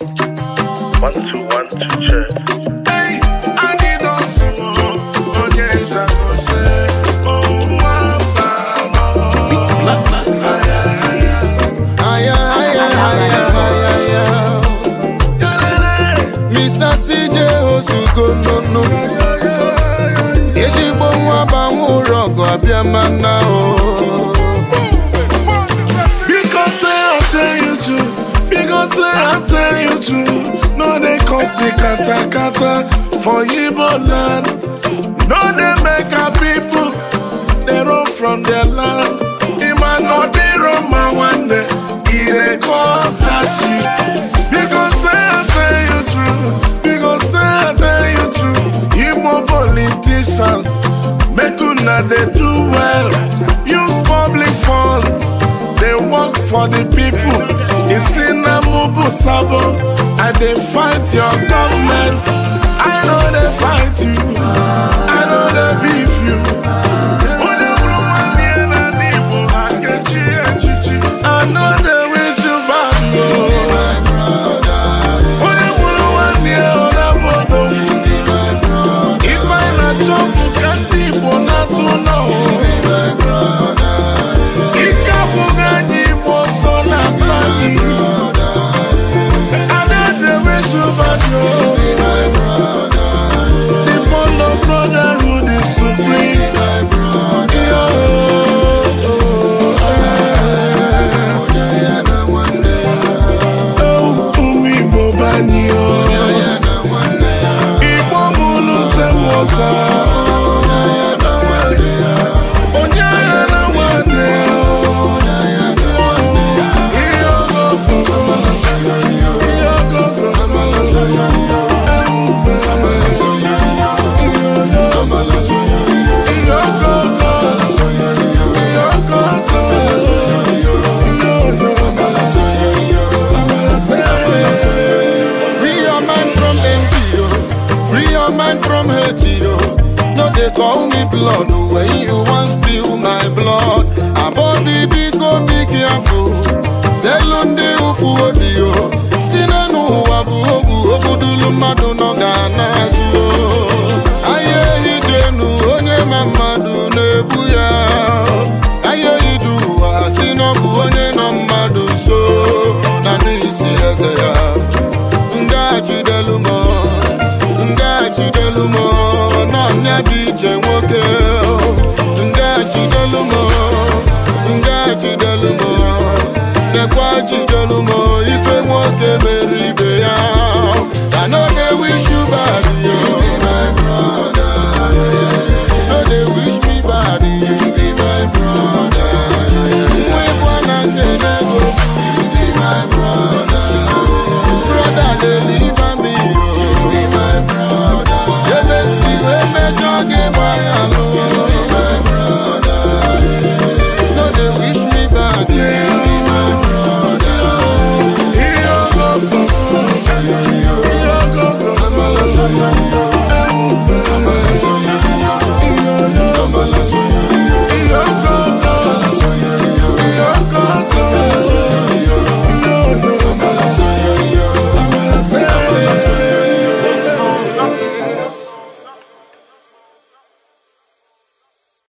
Oh, Mr. CJ Osugo nunu Ezigbo nwa banwe ụrọ ọgụ abịa mana o oh. I say I tell you true No they cause kata kata for yibo land No they make our people They run from their land Ima no say I tell you true say I tell you true una they do well Use public funds They work for the people It's in Obu Sabo, I dey fight your government. I know they fight you. no man from haiti yo oh. no dey call me blood oh. when you wan afọ selu ndị ụfụ obi yo oh. si na bụ ogwu ogbudulu mmadụ nọ ga-ana azụ ahịa ehi dị enu onye ma mmadụ na-ebu ya ahịa ehi dị ụwa si na bụ onye nọ mmadụ so na n'isi eze ya dekwa ji